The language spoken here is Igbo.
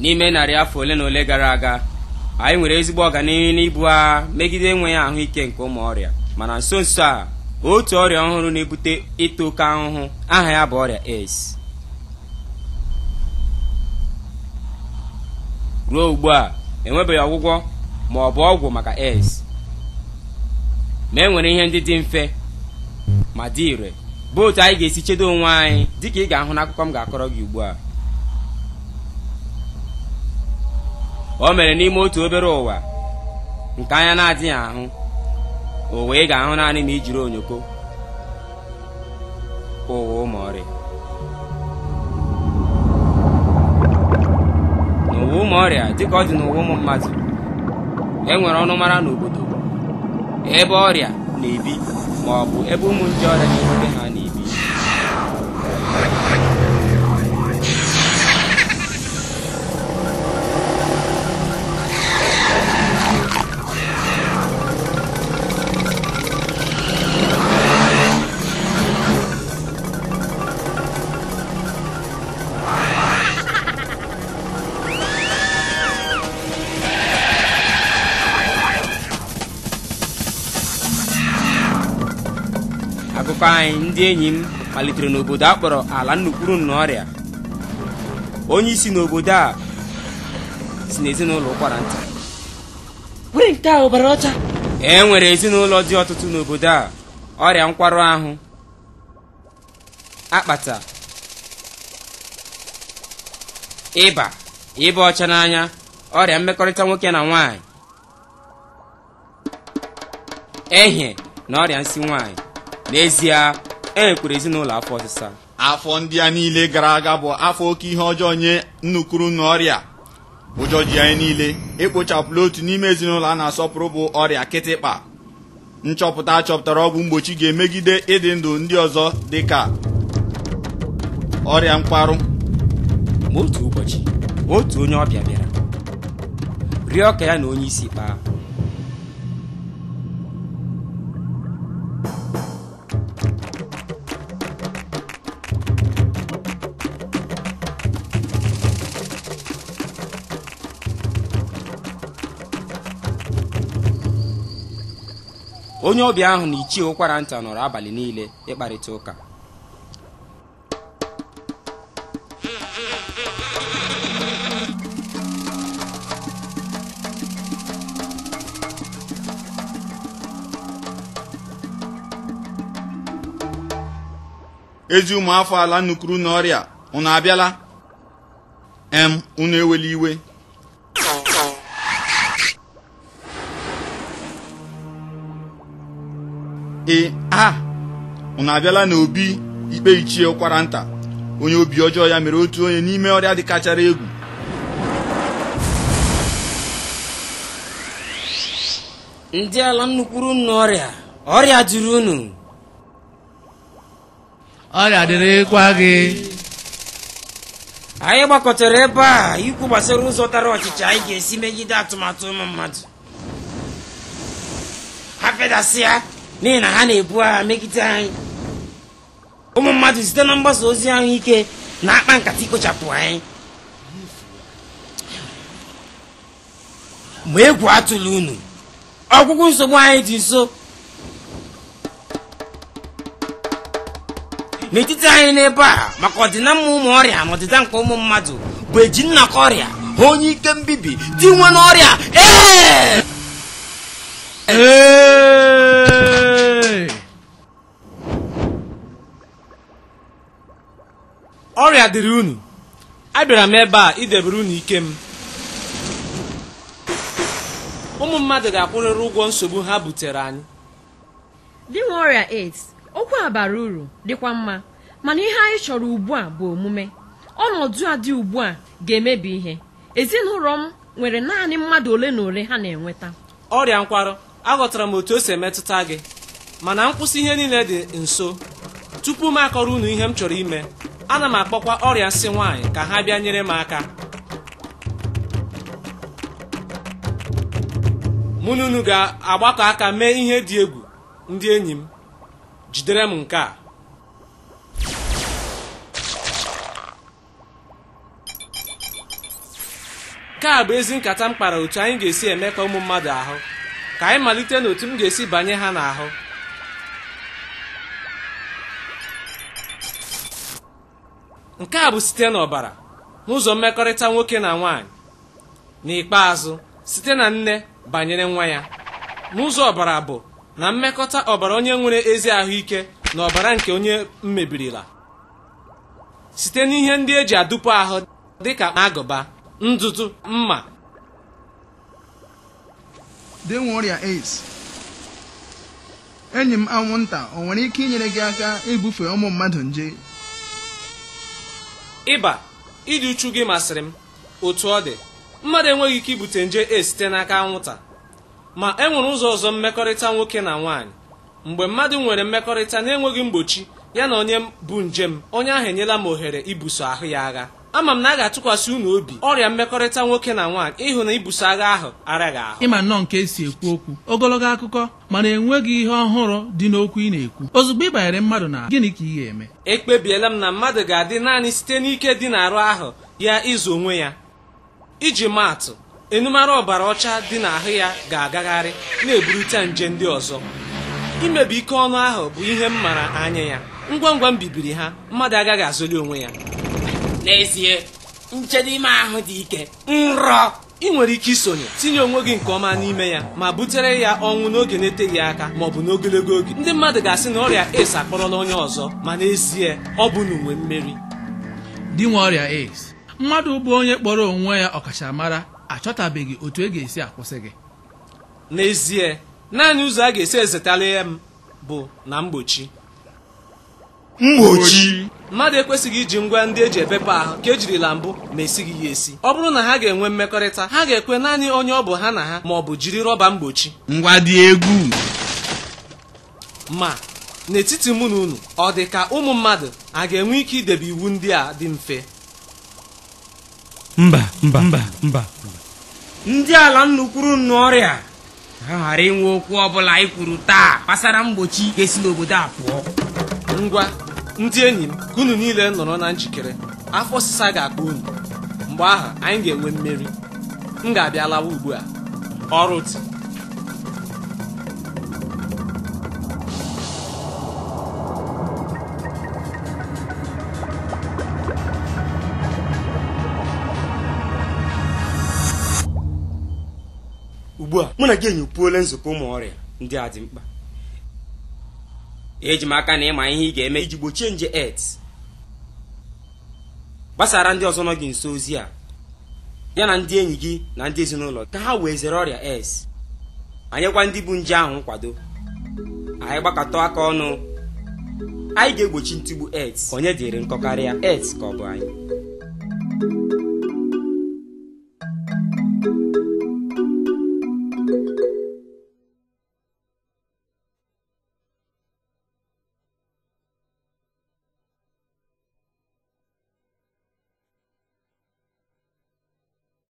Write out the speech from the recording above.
n'ime narị afọ ole na ole gara aga anyị nwere ezigbo ọganihu n'ibu agha megide enweghị ahụike nke ụmụ ọrịa mana nso nso a otu ọrịa ọhụrụ na-ebute ịta oke ahụhụ aha ya bụ ọrịa AIDS ruo ugbu a enwebeghị ọgwụgwọ ma ọ bụ ọgwụ maka AIDS ma e nwere ihe ndị dị mfe ma dị ire bụ otu anyị ga-esi chedo onwe anyị dịka ị ga-ahụ n'akụkọ m ga-akọrọ gị ugbu a o mere n'ime otu obere ụwa nke anya na-adịghị ahụ ụwa ị ga-ahụ naanị ma i jiri onyoko ụwa ụmụọrị n'ụwa ụmụ ọrịa dịka ọ dị n'ụwa ụmụ mmadụ e nwere mara n'obodo ebe ọrịa na-ebi ma ọ bụ ebe ụmụ nje ọrịa na-ebute ha n'ihe akụkọ anyị ndị enyi m malitere n'obodo a kpọrọ ala nnukwuru ọrịa onye isi n'obodo a si n'ezinụlọ ụkwara nta were ọcha e nwere ezinụlọ dị ọtụtụ n'obodo a ọrịa nkwarụ ahụ akpata ịba ịba ọcha n'anya ọrịa mmekọrịta nwoke na nwanyị ehie na ọrịa nsị nwanyị n'ezie e ezinụlọ afọ ọsịsa afọ ndị a niile gara aga bụ afọ oke ihe ọjọọ nye nnukwu na ọrịa ụjọ ji anyị niile ekpochapụla otu n'ime ezinụlọ a na-asọpụrụ bụ ọrịa kịtịkpa nchọpụta achọpụtara ọgwụ mgbochi ga-emegide ịdị ndụ ndị ọzọ dị ka ọrịa mkparụ ma otu ụbọchị otu onye ọbịa bịara rịọ ka ya na onye isi kpaa onye ọbịa ahụ na ichie ụkwara nta nọrọ abalị niile ịkparịta ụka ezi ụmụafọ ala nukuru n'ọrịa unu abịala em unu ewela iwe ee a na abịala na obi ikpe ichie ụkwara nta onye obi ọjọọ ya mere otu onye n'ime ọrịa dị kachara egwu ndị ala nnukwuru unu ọrịa ọrịa juru unu ọrịa dịrịkwa gị anyị gbakọtara ebe a ikwu gbasara ụzọ tara ọchịchị anyị ga-esi megide atụmatụ ụmụ mmadụ ha n'ihi na ha na-ebu agha megide anyị ụmụ mmadụ site na mgbasa ozi ahụike na-akpa nkata ikpochapụ anyị ma egwu atụla unu ọgwụgwụ nsogbu anyị dị nso n'etiti anyị n'ebe a maka ọdịnamma ụmụ ọrịa na ọdịda nke ụmụ mmadụ bụ eji nnakọ ọrịa onye ike mbibi dị nwe n'ọrịa ee a dịrị unu abịara m ebe a idebere unu ike m ụmụ mmadụ ga-akwụrịrị ụgwọ nsogbu ha butere anyị dị nwe ọrịa AIDS okwu a bara uru dịkwa mma mana ihe anyị chọrọ ugbu a bụ omume ọnọdụ a dị ugbu a ga-emebi ihe ezinụlọ m nwere naanị mmadụ ole na ole ha na-enweta ọrịa nkwarụ aghọtara m otu o si emetụta gị mana nkwụsị ihe niile dị nso tupu m akọrọ unu ihe m chọrọ ime ana m akpọkwa ọrịa nsị nwaanyị ka ha bịa nyere m aka mụ na unu ga-agbakọ aka mee ihe dị egwu ndị enyi m jidere m nke a nke a bụ ezi nkata m kpara otu anyị ga-esi eme ka ụmụ mmadụ ahụ ka anyị malite n'otu m ga-esi banye ha n'ahụ nke a bụ site n'ọbara n'ụzọ mmekọrịta nwoke na nwaanyị n'ikpeazụ site na nne banyere nwa ya n'ụzọ ọbara bụ na mmekọta ọbara onye nwere ezi ahụike na ọbara nke onye mmebirila site n'ihe ndị eji adụpụ ahụ dịka agụba ndụtụ mma dị ọrịa AIDS enyi m anwụnta ọ nwere ike inyere gị aka ibufe ụmụ mmadụ nje ịba ịdị uchu gị masịrị m otu ọ dị mmadụ enweghị ike ibute nje e site n'aka nwụta. ma e nwere ụzọ ọzọ mmekọrịta nwoke na nwaanyị mgbe mmadụ nwere mmekọrịta na-enweghị mgbochi ya na onye bụ njem onye ahụ enyela m ohere ibuso ahụ ya agha ama m na a ga-atụkwasị unu obi ọrịa mmekọrịta nwoke na nwaanyị ịhụ na ibuso agha ahụ araghị ahụ ịma nnọọ nke esi ekwu okwu ogologo akụkọ mana enweghị ihe ọhụrụ dị n'okwu ị na-ekwu ozugbo ị banyere mmadụ na gịnị ka ị ga-eme ekpebiela m na mmadụ ga-adị naanị site n'ike dị n'arụ ahụ ya ịzụ onwe ya iji maatụ enumara ọbara ọcha dị n'ahụ ya ga-agagharị na-eburite nje ndị ọzọ imebi ike ọnụ ahụ bụ ihe m mara anya ya ngwa ngwa m bibiri ha mmadụ agaghị azụli onwe ya n'ezie nchedo ime ahụ dị ike nrọ ị nwere ike isonye tinye onwe gị nke ọma n'ime ya ma butere ya ọnwụ n'oge na-eteghị aka ma ọ bụ n'ogologo oge ndị mmadụ ga-asị na ọrịa AIDS akpọrọla onye ọzọ ma n'ezie ọ bụ n'uwe mmeri dị nwe ọrịa AIDS mmadụ bụ onye kpọrọ onwe ya ọkachamara achọtabeghị otu e ga-esi akwụsị gị n'ezie naanị ụzọ a ga-esi ezetara ya m bụ na mgbochi mgbochi mmadụ ekwesịghị iji ngwa ndị eji epepe ahụ ka ejirila mbụ ma esighị ya esi ọ bụrụ na ha ga-enwe mmekọrịta ha ga-ekwe naanị onye ọ bụ ha na ha ma ọ bụ jiri rọba mgbochi ngwa dị egwu ma n'etiti mụ na unu ọ dị ka ụmụ mmadụ a ga-enwe ike idebe iwu ndị a dị mfe mba mba mba mba ndị ala nnukwuru nnu ọrịa ha ghara inwe okwu ọ bụla ikwuru taa gbasara mgbochi ga-esi n'obodo a pụọ ngwa ndị enyi m ka unu niile nọrọ na njikere afọ ọsịsa ga-akpa unu mgbe ahụ anyị ga-enwe mmeri m ga-abịa ugbu a ọrụ dị ugbu a mụ na gị enyi nzukọ ụmụ ọrịa ndị a dị mkpa eji aka na ịma ihe ị ga-eme iji gbochie nje et gbasara ndị ọzọ nọ gị nso ozi a ya na ndị enyi gị na ndị ezinụlọ ka ha wee zere ọrịa es anyekwa ndị bụ nje ahụ nkwado anyị gbakọta aka ọnụ anyị ga-egbochi ntụgbu et onye dịrị nkọ karịa et ka ọ bụ anyị